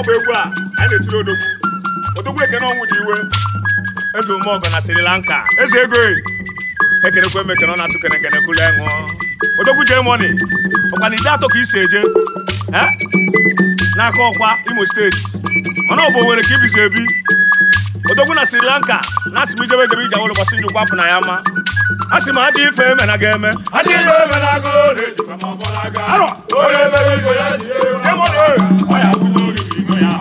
ọ bụ egwu a anyị na-etiri odogwu odogwu ekene ọnwụ dị iwe eze ume ọgọ na Sri Lanka eze ego ekenekwe e m ekene ọ na-atụ kene kene kụlụ ṅụọ odogwu jee mọni ọkwa na ide atọ ka isi eje n'aka ọkwa Imo steeti mana ọ bụ Owerri ka ibizi ebi odogwu na Sri Lanka na-asị m ijebe ijebe iji awụlụkwasị njikwa kwapụ na ya ma a sị m adị ife eme na ga-eme adịghị na ejikwa ma ọ bụla aga arọ onye mere ife ya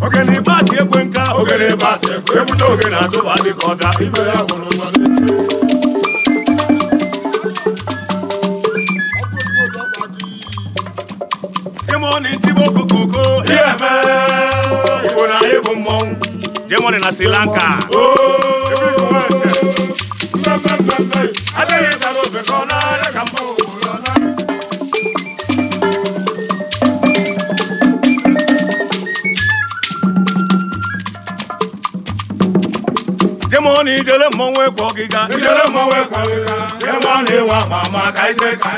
ogene bati ekwe nka ogene bati ekwe ebute ogene atụba dị ka ọbịa ibe ya hụrụ ụzọ jemoni ntibo kokoko iyeme igbo na anyị bụ mmọnwụ jemoni na sri lanka ni jele mọwe kọ giga. ni jele mọwe kọ giga. wa mama ka ite ka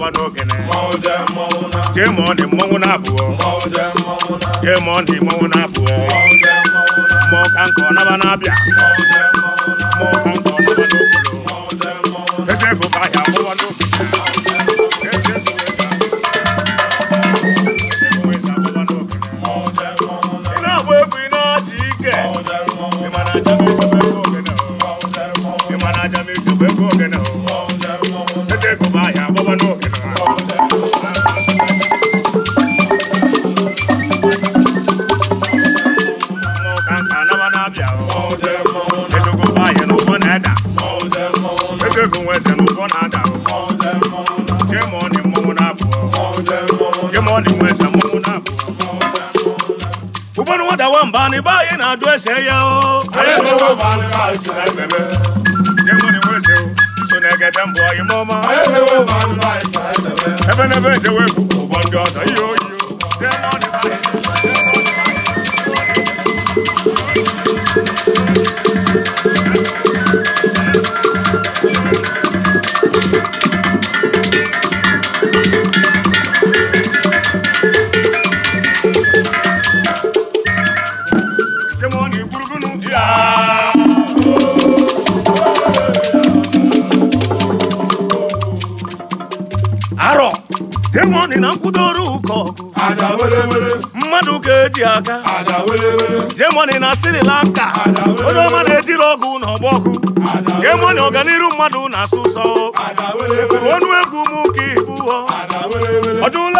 na n'oge na jee jemọ ọ dị mmọnwụ na-abụọ jee ma ọ dị na-abụọ ma ọ ka na-abịa mo ni wese mo na bo ubonu wada wa mba ni ba ye na do ese ye o aye mo wa mba ni ba ese na bebe je mo ni wese o so na ga dan bo ye mo ma aye mo wa mba ni ba ese na bebe ebe na be je we ku bo do so ye arọ demoni na nkwụdoro ụkọ mmadụ ga-eji aka demoni na Sri Lanka onye ọma na-ejiri ọgụ na ọgbọgụ demoni ọganiru mmadụ na-asụ sọ onu egwu m ka ibu ọ ọjụla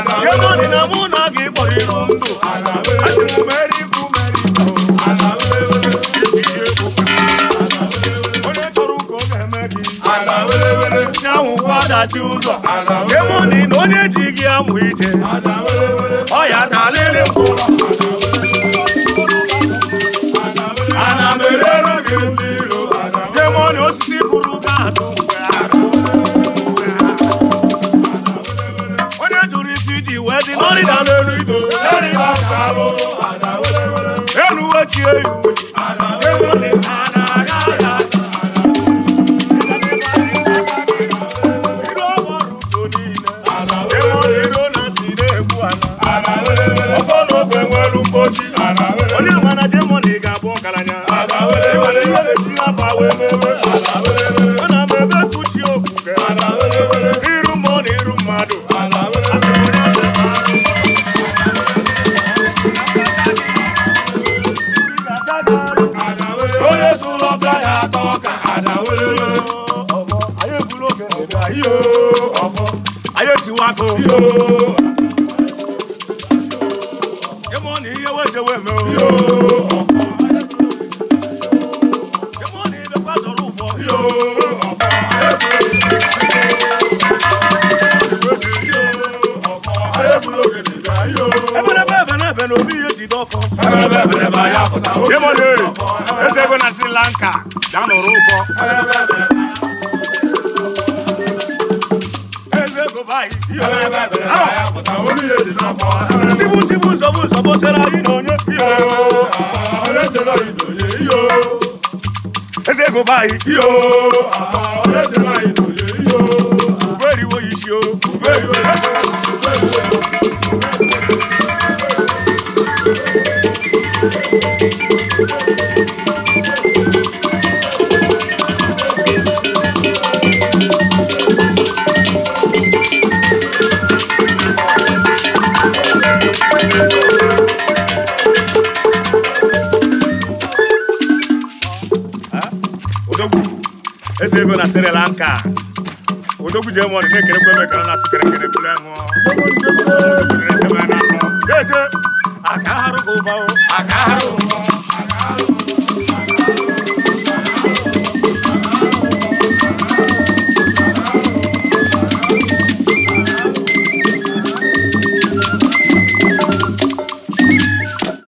ego dị na mụ na ga ịrụ ndụ asị m onye chọrọ ụka ọ ga-eme gị adachi ụzọ emụnị na onye ji gị amụ ije ọ ya dalịrị mkpụrụ breather. olóyè ọmọ ayé ìbúlò kẹlẹbẹ ayé ọfọ ayé tiwa kò. yémo ní iye wo jẹ wẹmẹ o. yémo ní ibẹ̀ pàṣẹ rúbọ. Yemode, ese go na Sri Lanka, down the road. Ese go by. Tibu tibu sobu sobu sera inonye. Ese yo. Ese go go inonye yo. Uberi wo ishi o. Uberi wo ese ego na Sri Lanka odogwu ji emọdụ na-ekerekwa ebe ekere na-atụ kerekere bụrụ ahụ eje aka arụ ụba aka arụ ụba